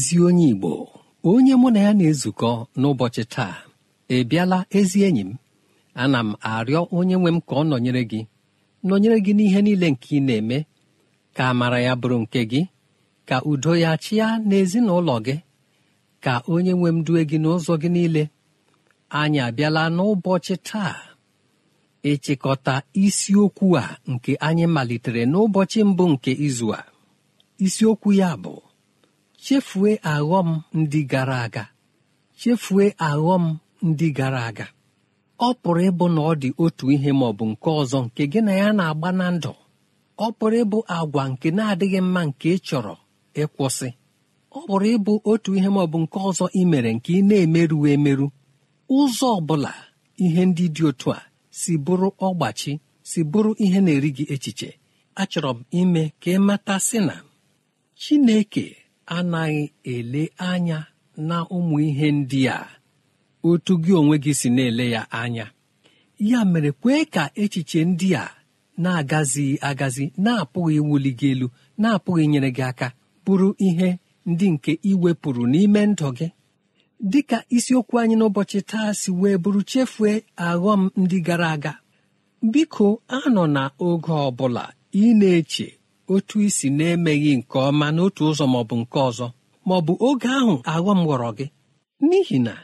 ezi onye Igbo onye mụ na ya na-ezukọ n'ụbọchị taa ị bịala ezi enyi m ana m arịọ onye nwe m ka ọ nọnyere gị nọnyere gị n'ihe niile nke ị na-eme ka amara ya bụrụ nke gị ka udo ya chịa n'ezinụlọ gị ka onye nwe m due gị n'ụzọ gị niile anyị abịala n'ụbọchị taa ịchịkọta isiokwu a nke anyị malitere n'ụbọchị mbụ nke izu a isiokwu ya bụ chefue aghọm ndị gara aga chefue aghọm ndị gara aga ọ pụrụ ịbụ na ọ dị otu ihe ma ọ bụ nke ọzọ nke gị na ya na-agba na ndụ ọ pụrụ ịbụ agwa nke na-adịghị mma nke ị chọrọ ịkwụsị ọ pụrụ ịbụ otu ihe ma ọ bụ nke ọzọ ị mere nke ị na-emerụ emerụ ụzọ ọ bụla ihe ndị dị otu a si bụrụ ọgbachi si bụrụ ihe na-eri gị echiche achọrọ m ime ka ị mata sị na Chineke anaghị ele anya na ụmụ ihe ndị a otu gị onwe gị si na-ele ya anya ya mere kwee ka echiche ndị a na-agazighị agazi na-apụghị wuli gị elu na-apụghị nyere gị aka bụrụ ihe ndị nke iwepụrụ n'ime ndụ gị dị ka isiokwu anyị n'ụbọchị taa si wee bụrụ chefue aghọm ndị gara aga biko anọ na oge ọ bụla ị na-eche otu isi na-emeghị nke ọma n'otu ụzọ ma ọ bụ nke ọzọ ma ọ bụ oge ahụ aghọm gwọrọ gị n'ihi na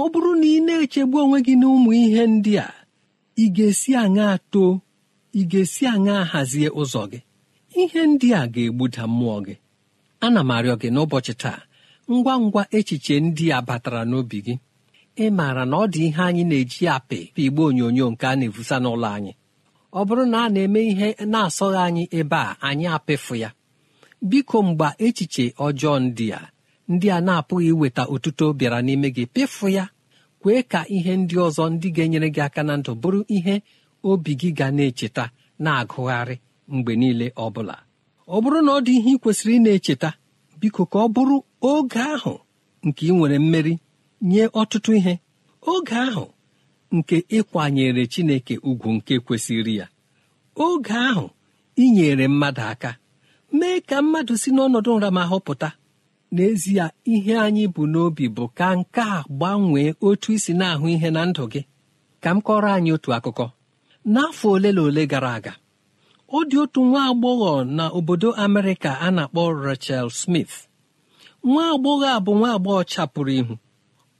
ọ bụrụ na ị na-echegbu onwe gị n'ụmụ ihe ndị a ị ga-esi aṅa too ị ga-esi aṅa hazie ụzọ gị ihe ndị a ga-egbuda mmụọ gị ana m arịọ gị n'ụbọchị taa ngwa ngwa echiche ndị a batara n'obi gị ị maara na ọ dị ihe anyị na-eji apị igbe onyonyo nke a na evusa n'ụlọ anyị ọ bụrụ na a na-eme ihe na-asọghị anyị ebe a anyị apịfụ ya biko mgbe echiche ọjọọ ndị a ndị a na-apụghị iweta otuto bịara n'ime gị pịfụ ya kwee ka ihe ndị ọzọ ndị ga-enyere gị aka na ndụ bụrụ ihe obi gị ga na-echeta na-agụgharị mgbe niile ọ bụla ọ bụrụ na ọ dị ihe ị kwesịrị ị na-echeta biko ka ọ bụrụ oge ahụ nke ị nwere mmeri nye ọtụtụ ihe oge ahụ nke ịkwanyere chineke ugwu nke kwesịrị ya oge ahụ inyere mmadụ aka mee ka mmadụ si n'ọnọdụ nramahụ pụta n'ezie ihe anyị bụ n'obi bụ ka nke a gbanwee otu isi na-ahụ ihe na ndụ gị ka m kọrọ anyị otu akụkọ n'afọ ole na ole gara aga ọ dị otu nwa agbọghọ na obodo Amerịka a na-akpọ Rachel Smith nwa agbọghọ a bụ nwa agbọghọ chapụrụ ihu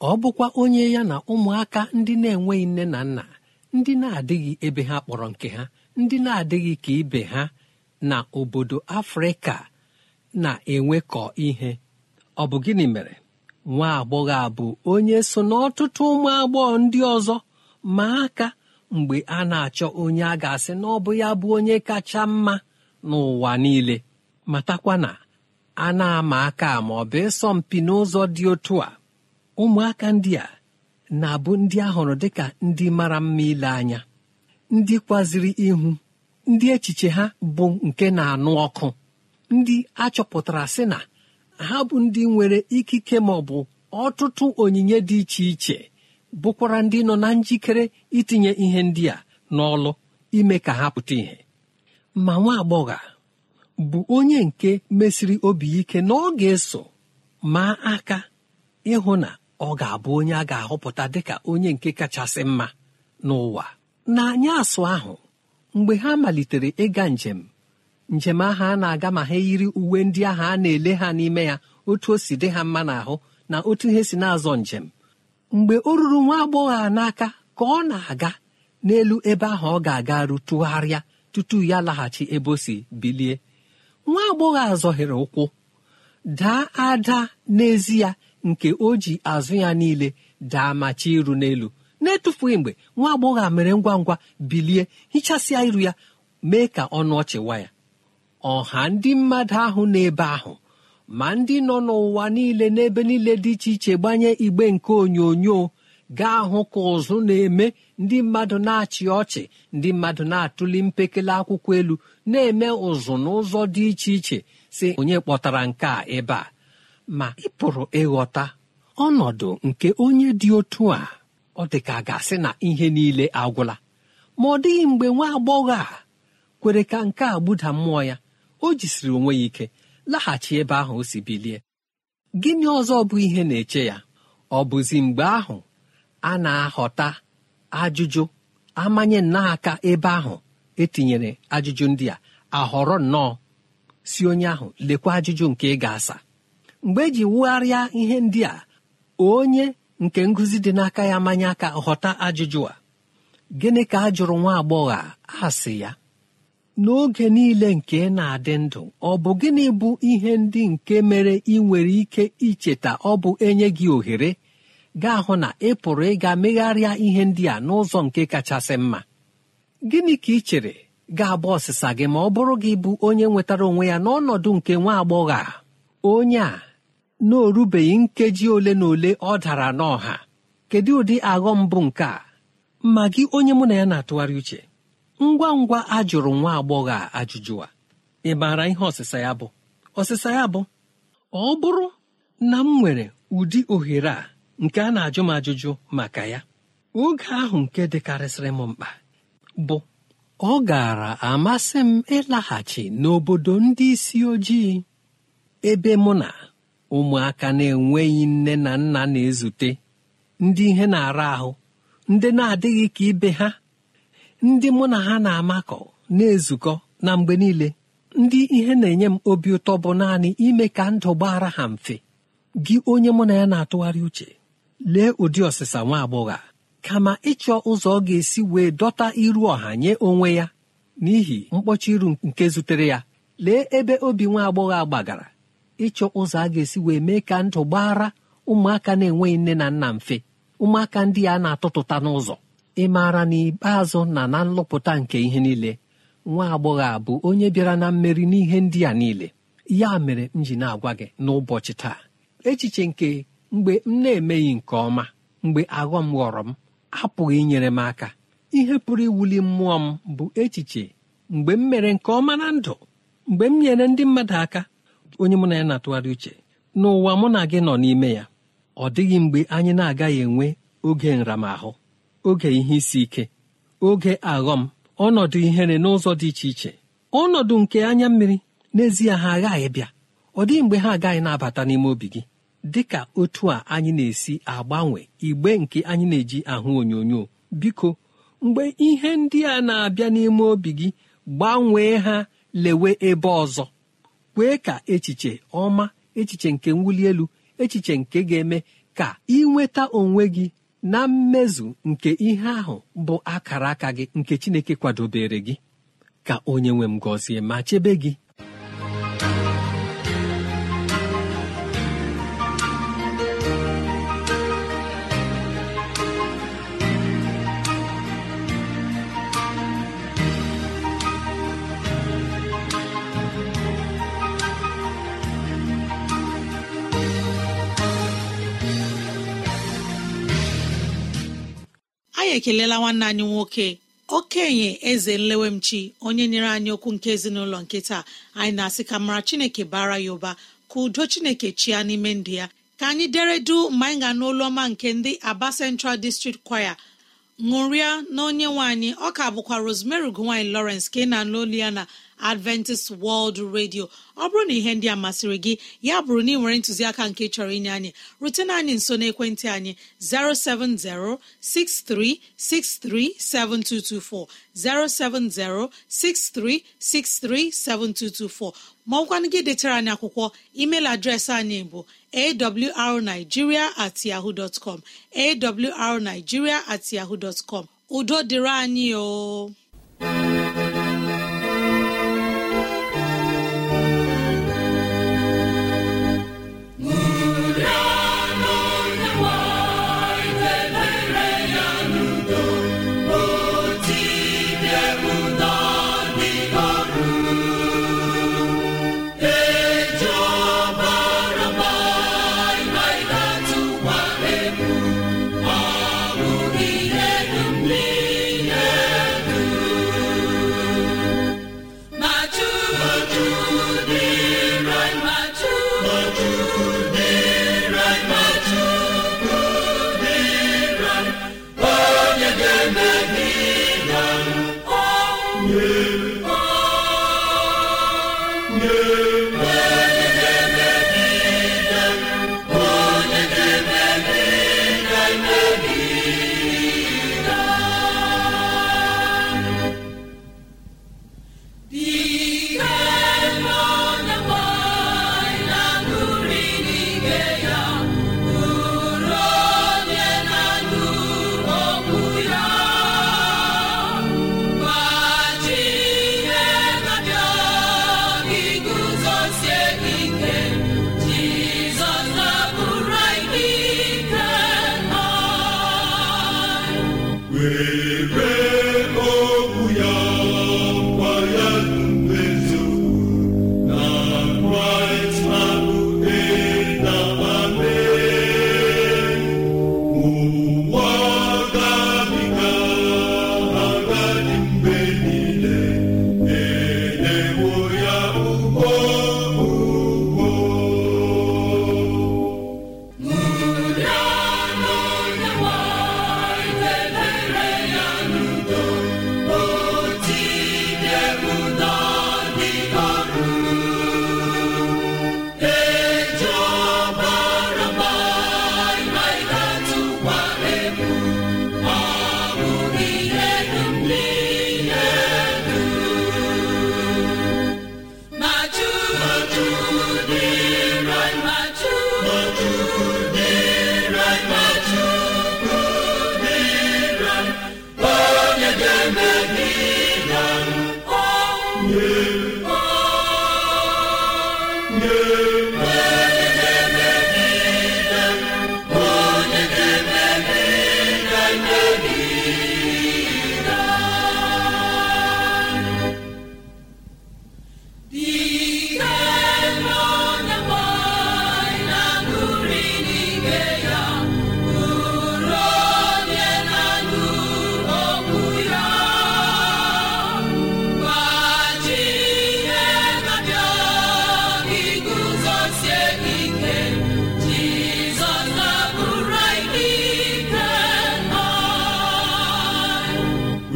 ọ bụkwa onye ya na ụmụaka ndị na-enweghị nne na nna ndị na-adịghị ebe ha kpọrọ nke ha ndị na-adịghị ka ibe ha na obodo afrịka na-enwekọ ihe ọ bụ gịnị mere nwa agbọghọ a bụ onye so n'ọtụtụ ụmụ agbọghọ ndị ọzọ ma aka mgbe a na-achọ onye a ga-asị na ya bụ onye kacha mma n'ụwa niile matakwa na a na-ama aka ma ọ bụ ịsọ n'ụzọ dị otu a ụmụaka ndị a na-abụ ndị ahụrụ hụrụ dịka ndị mara mma ile anya ndị kwaziri ihu ndị echiche ha bụ nke na-anụ ọkụ ndị achọpụtara sị na ha bụ ndị nwere ikike ma ọ bụ ọtụtụ onyinye dị iche iche bụkwara ndị nọ na njikere itinye ihe ndị a n'ọlụ ime ka ha pụta ìhè ma nwa agbọghọ bụ onye nke mesiri obi ike na ọ eso maa aka ịhụ na ọ ga-abụ onye a ga-ahọpụta dịka onye nke kachasị mma n'ụwa n'anya asụ ahụ mgbe ha malitere ịga njem njem ahụ a na-aga ma ha yiri uwe ndị ahụ a na-ele ha n'ime ya otu o si dị ha mma n'ahụ na otu ihe si na-azọ njem mgbe o ruru nwa agbọghọ a n'aka ka ọ na-aga n'elu ebe ahụ ọ ga-aga rutụgharịa tutu ya laghachi ebe o si bilie nwa agbọghọ a ụkwụ daa ada n'ezi ya nke o ji azụ ya niile daa ma chi iru n'elu na-etufughị mgbe nwa agbọghọ a mere ngwa ngwa bilie hichasịa iru ya mee ka ọnụ ọchịwa ya ọha ndị mmadụ ahụ n'ebe ahụ ma ndị nọ n'ụwa niile n'ebe niile dị iche iche gbanye igbe nke onyonyo gaa hụ ka ụzụ na-eme ndị mmadụ na-achị ọchị ndị mmadụ na-atụli mpekele akwụkwọ elu na-eme ụzụ n'ụzọ dị iche iche si onye kpọtara nke a ebe a ma ị pụrụ ịghọta ọnọdụ nke onye dị otu a ọ dị ka ga-asị na ihe niile agwụla ma ọ dịghị mgbe nwa agbọghọ a kwere ka nke a gbuda mmụọ ya o jisiri onwe ya ike laghachi ebe ahụ o si bilie gịnị ọzọ bụ ihe na-eche ya ọ bụzi mgbe ahụ a na ahọta ajụjụ amanye nnọọ ebe ahụ etinyere ajụjụ ndị a ahọrọ nnọọ si onye ahụ lekwa ajụjụ nke ị ga-asa mgbe eji wugharịa ihe ndị a onye nke ngụzi dị n'aka ya manya aka ghọta ajụjụ a gịnị ka a jụrụ nwa agbọghọ a ya n'oge niile nke na-adị ndụ ọ bụ gịnị bụ ihe ndị nke mere ị nwere ike icheta ọ bụ enye gị ohere gaa hụ na ị pụrụ ịga megharịa ihe ndị a n'ụzọ nke kachasị mma gịnị ka ị chere ga-agba ọsịsa gị ma ọ bụrụ gị bụ onye nwetara onwe ya n'ọnọdụ nke nwa agbọghọ a onye a na orubeghị nkeji ole na ole ọ dara n'ọha kedu ụdị aghọ mbụ nke a ma gị onye mụ na ya na-atụgharị uche ngwa ngwa ajụrụ nwa agbọghọ a ajụjụ a ị maara ihe ọsịsa ya bụ ọsịsa ya bụ ọ bụrụ na m nwere ụdị ohere a nke a na-ajụ m ajụjụ maka ya oge ahụ nke dịkarịsịrị m mkpa bụ ọ gara amasị m ịlaghachi n'obodo ndị isi ojii ebe mụ na ụmụaka na-enweghị nne na nna na-ezute ndị ihe na-ara ahụ ndị na-adịghị ka ibe ha ndị mụ na ha na-amakọ na-ezukọ na mgbe niile ndị ihe na-enye m obi ụtọ bụ naanị ime ka ndụ gbara ha mfe gị onye mụ na ya na-atụgharị uche lee ụdị ọsịsa nwa agbọghọ kama ịchọ ụzọ ọ ga-esi wee dọta iru ọha nye onwe ya n'ihi mkpọchi iru nke zutere ya lee ebe obi nwa agbọghọ gbagara ịchọ ụzọ a ga-esi wee mee ka ndụ gbara ụmụaka na-enweghị nne na nna mfe ụmụaka ndị a na-atụtụta n'ụzọ ị maara na na na nlụpụta nke ihe niile nwa agbọghọ a bụ onye bịara na mmeri n'ihe ndị a niile ya mere m ji na-agwa gị n'ụbọchị taa echiche nke mgbe m na-emeghị nke ọma mgbe aghọ m ghọrọ m apụghị inyere m aka ihe pụrụ iwuli mmụọ m bụ echiche mgbe m mere nke ọma na ndụ mgbe m nyere ndị mmadụ aka onye mụ na ya na-atụgharị uche n'ụwa mụ na gị nọ n'ime ya ọ dịghị mgbe anyị na-agaghị enwe oge nramahụ oge ihe isi ike oge aghọm ọnọdụ ihere n'ụzọ dị iche iche ọnọdụ nke anya mmiri n'ezie ha aghaghị bịa ọ dịghị mgbe ha agaghị na-abata n'ime obi gị dị ka otu a anyị na-esi agbanwe igbe nke anyị na-eji ahụ onyonyo biko mgbe ihe ndị a na-abịa n'ime obi gị gbanwee ha lewe ebe ọzọ kwee ka echiche ọma echiche nke mwuli elu echiche nke ga-eme ka ịnweta onwe gị na mmezu nke ihe ahụ bụ akara aka gị nke Chineke kwadobere gị ka onye nwe m gọzie ma chebe gị anyị ekelela nwanne anyị nwoke okenye eze nlewemchi onye nyere anyị okwu nke ezinụlọ nke taa anyị na-asị ka mara chineke bara ya ụba ka udo chineke chia n'ime ndụ ya ka anyị deredu mgbe anyị ga ọma nke ndị aba central district choir ṅụrịa na onye nwe anyị ọ bụkwa rosemary gowany lawrence ka ị na-anụ olu ya na adventist world radio ọ bụrụ na ihe ndị a masịrị gị ya bụrụ na ị nwere ntụziaka nke chọrọ inye anyị rutena anyị nso n'ekwentị anyị 07063637224 07063637224 ma ọ gị detere anyị akwụkwọ email adreesị anyị bụ awrnigeria at yahoo dot com at yahoo dot com udo dịrị anyị o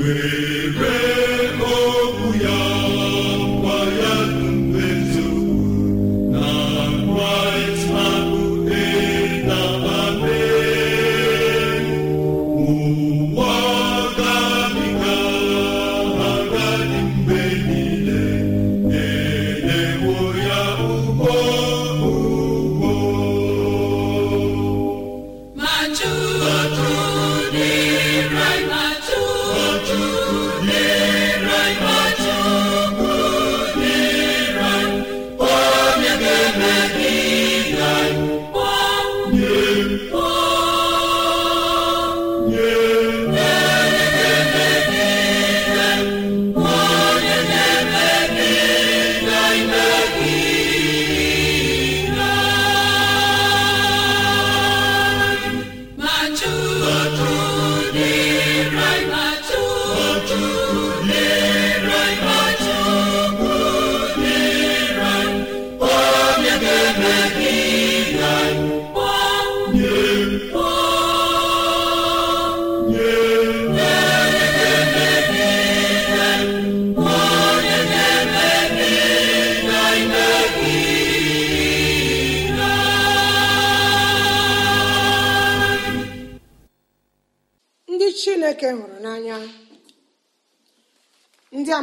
Wait.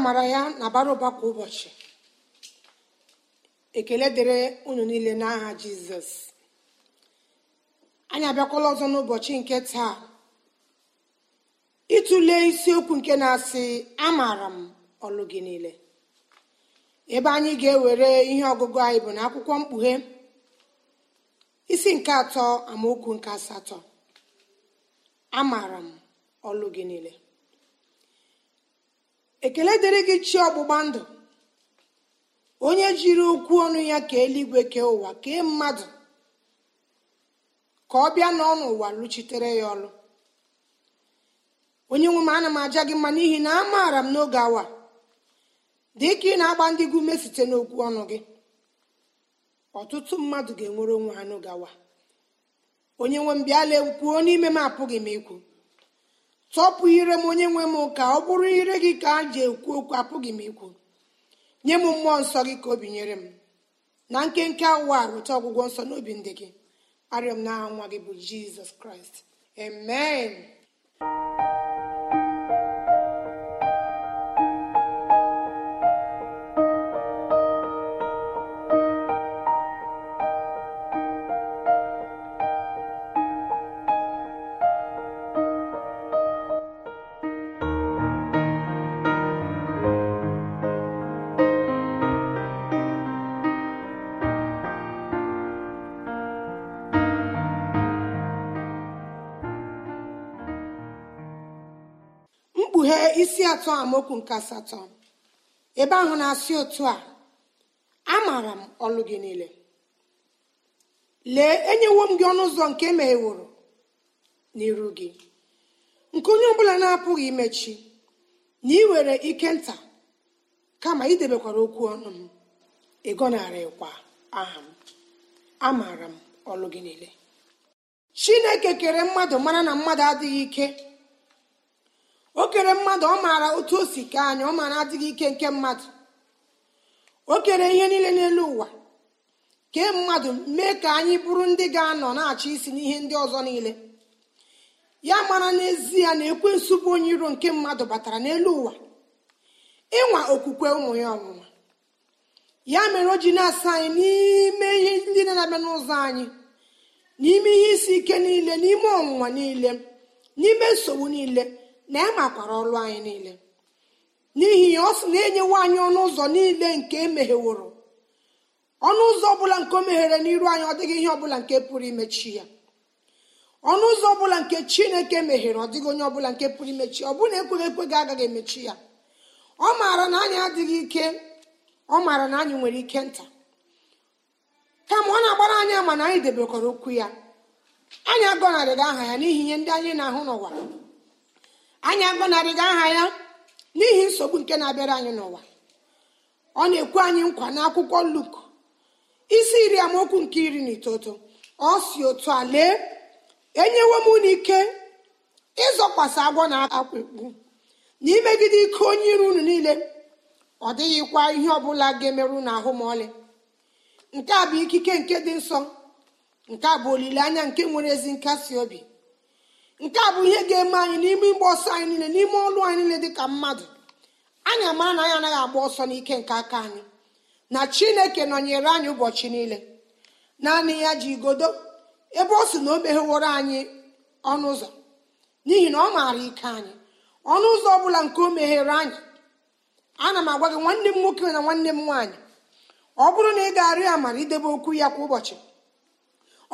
amara ya na bara ụba kwa ụbọchị ekele dịrị unu niile n'aha jizọs anyị abịakwala ọzọ n'ụbọchị nke taa ịtụle isiokwu nke na-asị amaara m ọlụ gị niile ebe anyị ga-ewere ihe ọgụgụ anyị bụ na akwụkwọ mkpughe isi nke atọ amaokwu nke asatọ amaara m ọlụ gị niile ekele dịrị gị chi ọgbụgba ndụ onye jiri okwu ọnụ ya ka eluigwe kee ụwa kee mmadụ ka ọ bịa n'ọnụ ụwa lụchitere ya ọrụ. onye nwe m ana m aja gị mma n'ihi na amaara m n'oge awa dị ka ị na-agba ndị gị ume site n'okwu ọnụ gị ọtụtụ mmadụ ga-enwere onwe ha n'oge awa onye nwe m bịa ekwuo n'ime m apụghị m ikwu tọpụ ire m onye nwe m ka ọ bụrụ ire gị ka a ji ekwu okwu apụghị m ikwu nye m mmụọ nsọ gị ka o binyere m na nkenke awa weta ọgwụgwọ nsọ n'obi ndị gị arịọ m nwa gị bụ jizọs kraịst amen atọ amaokwu nke asatọ ebe ahụ na-asị otu a amaara m ọlụ gị niile lee enyewo m gị ọnụ ụzọ nke e na iru gị nke onye ọbụla na-apụghị imechi na ị were ike nta kama idebekwara okwu ọnụ m ịgọnarịkwa aha m amaara m ọlụ gị niile chineke kere mmadụ mara na mmadụ adịghị ike o kere mmadụ ọ maara otu o si kee anyị ọ maara adịghị ike nke mmadụ o kere ihe niile n'elu ụwa kee mmadụ mee ka anyị bụrụ ndị ga-anọ na-achị isi n'ihe ndị ọzọ niile ya mara n'ezie na ekwe bụ onye iro nke mmadụ batara n'elu ụwa ịnwa okwukwe ụmụ ya ọnwụnwa ya mere o ji na-asa anyị n'ime ihe ndị na-abịa n'ụzọ anyị n'ime ihe isi ike niile n'ime ọnwụnwa niile n'ime nsogbu niile na ya ọrụ anyị niile n'ihi ya ọ sị na enyewo anyị ọnụ ụzọ niile nke emegheworo ọnụ ụzọ ọbụla nke o meghere n'iru anyị ọ dịghị ihe ọbụla nke pụrụ imechi ya ọnụ ụzọ ọbụla nke chineke meghere ọ dịghị onye ọbụla nke pụrụ imechi ọ bụna e ekweghị gị agaghị emechi ya ọ maara na anyị adịghị ike ọ maara na anyị nwere ike nta kama ọ na-agbara anyị ama na anyị debekọrọ okwu ya anyị agọnarịghị aha ya n'ihi ihe ndị anyị na-ahụ n'ụwa anyị agọnarịghị aha ya n'ihi nsogbu nke na-abịara anyị n'ụwa ọ na-ekwu anyị nkwa n'akwụkwọ luk isi iri amaokwu nke iri na itoto ọ si otu a lee enyewo m unu ike ịzọkwasị agwọ na akwụkpụ na imegide ike onye iru unu niile ọ dịghịkwa ihe ọbụla ga-emerụ na ahụ ma ọlị nke a bụ ikike nke dị nsọ nke a bụ olileanya nke nwere ezi nkasi obi nke a bụ ihe ga-eme anyị n'ime ịgba ọsọ anyị niile n'ime ọlụ anyị niile dịka mmadụ anyị amara na anyị anaghị agba ọsọ n'ike nke aka anyị na chineke nọnyere anyị ụbọchị niile naanị ya ji igodo ebe ọ sị na o megheworo anyị ọnụ ụzọ n'ihi na ọ maara ike anyị ọnụ ụzọ ọ bụla nke o meghere anyị ana m agwa gị nwanne m nwoke na nwanne m nwaanyị ọ bụrụ na ị ga-arịọ ya amara idebe okwu ya kwa ụbọchị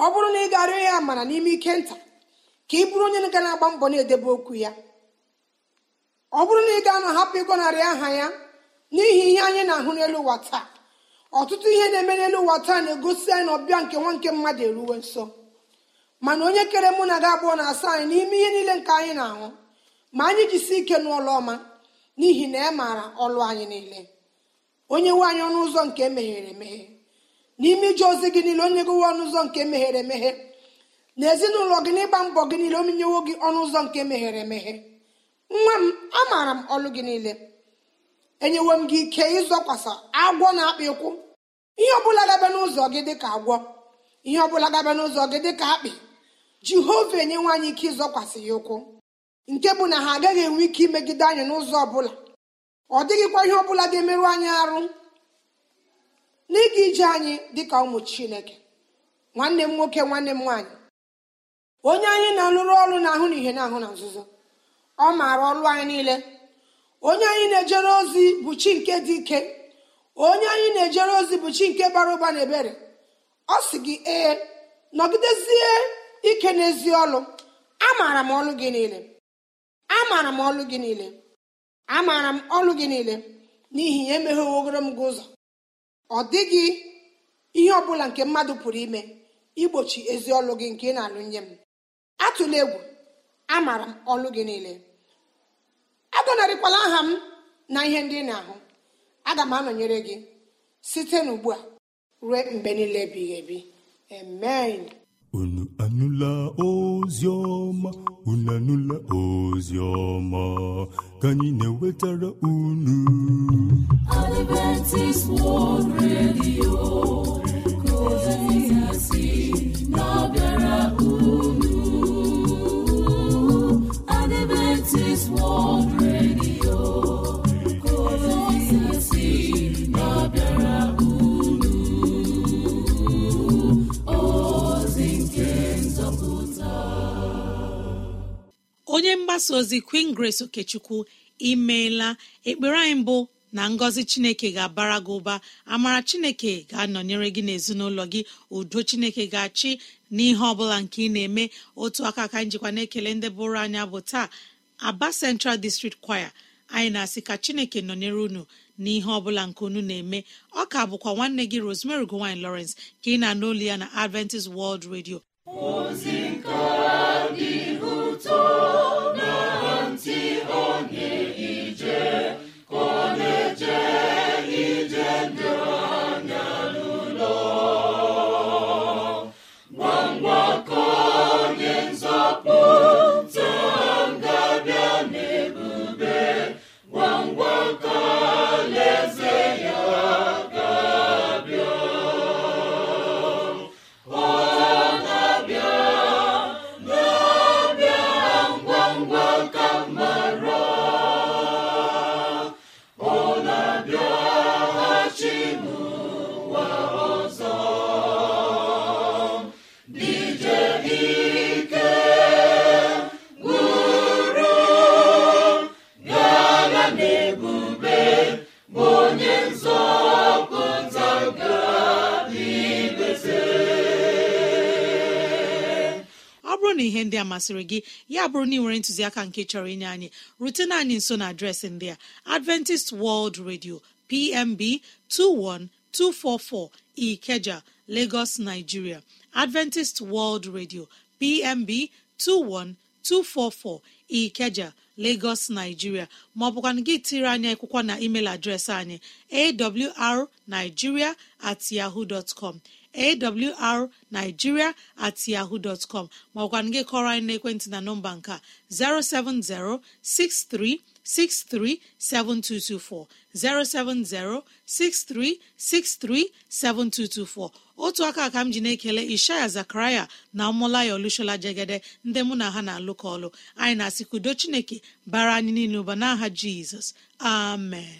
ọ bụrụ na ị ga-arịọ ya amara n'ime ike nta ka ị bụrụ onye ga na-agba mbọ na-edebe okwu ya ọ bụrụ na ị ga na hapụ ịgọnarị aha ya n'ihi ihe anyị na-ahụ n'elu ụwa taa ọtụtụ ihe na-eme n'elu ụwa taa na-egosi anyị na ọbịa nke nwa nke mmadụ eruwe nso mana onye kere mụ na gị abụọ na asa anyị n'ime ihe niile nke anyị na-ahụ ma anyị jisi ike n'ụlọ ọma n'ihi na e maara ọlụ anyị niile onye nwe anyị ọnụ ụzọ nke emeghere emeghe n'ime ije ozi gị niile onye nwe ọnụ ụzọ nke emeghere emeghe na ezinụlọ gị na ịgba mbọ gị niile omenyewo gị ọnụ ụzọ nke meghere emeghe nwa m amaara m ọlụ gị niile enyewo m gị ike ịzọkwasa agwọ na akpị ụkwụ. ihe ọbụla gabe n'ụzọ gị dịka agwọ ihe ọbụla gaba n'ụzọ gị dịka akpị jehova enye nwaanyị ike ịzọkwasị ya ụkwụ nke bụ na ha agaghị enwe ike imegide anyị n'ụzọ ọbụla ọ dịghịkwa ihe ọbụla ga-emerụ anyị arụ n'ịga ije anyị dịka ụmụ chineke nwanne m nwoke nwanne m nwaanyị onye anyị na-alụrụ ọrụ na ahụ na ihe na-ahụ na nzuzo ọ maara ọrụ anyị niile onye anyị na-ejere ozi bụ chi nke dị ike onye anyị na-ejere ozi bụ chi nke bara ụba na ebere ọ sị gị ee nọgidezie ike n'ezi ọlụ amaara m ọlụ gị niile amaara m ọlụ gị niile amaara m ọlụ gị niile n'ihi ya emeghewogoro m gị ụzọ ọ dịghị ihe ọbụla nke mmadụ pụrụ ime igbochi ezi ọlụ gị nke ị na-alụ nye m atụla egwu amara m ọlụ gị niile agọnarịkwala aha m na ihe ndị na-ahụ aga m anọnyere gị site n'ugbu a ruo mgbe niile ebighị ebi amen unu anụla ozi ọma unu anụla ozi ọma ka anyị na-ewetara unu Adventist World Radio ka ozi ya si onye mgbasa ozi queen grace okechukwu imeela ekpere anyị mbụ na ngọzi chineke ga-abara gị ụba amara chineke ga-anọnyere gị n'ezinụlọ gị udo chineke ga-achị n'ihe ọ bụla nke ị na-eme otu aka ka njikwa na-ekele ndị bụrụ anya bụ taa aba central district choir anyị na-asị ka chineke nọnyere unu na ihe bụla nke unu na-eme ọ ka bụkwa nwanne gị rosemary gowany lawrence ka ị na anụ olu ya na adventist world radio ihe ndị a masịrị gị ya bụrụ na ị nwere ntụziaka nke chọrọ inye anyị rutena anyị nso na adreesị ndị a adventist world radio pmb 21244 ikeja lagos nigeria adventist world radio pmb 21244 ikeja lagos nigeria maọbụkwana gị tiri anyị akwụkwọ na email adreesị anyị awrnigeria at yahoo dot awrnigiria at yahoo dọtcom maọkwana gị kọrọ anyị n'ekwentị na nọmba nke a 07063637224 otu aka ka m ji na-ekele ishaya zakaraya na ọmụlaya olushola jegede ndị mụ na ha na alụkọ ọlụ anyị na-asị chineke bara anyị niile ụba n'aha jizọs amen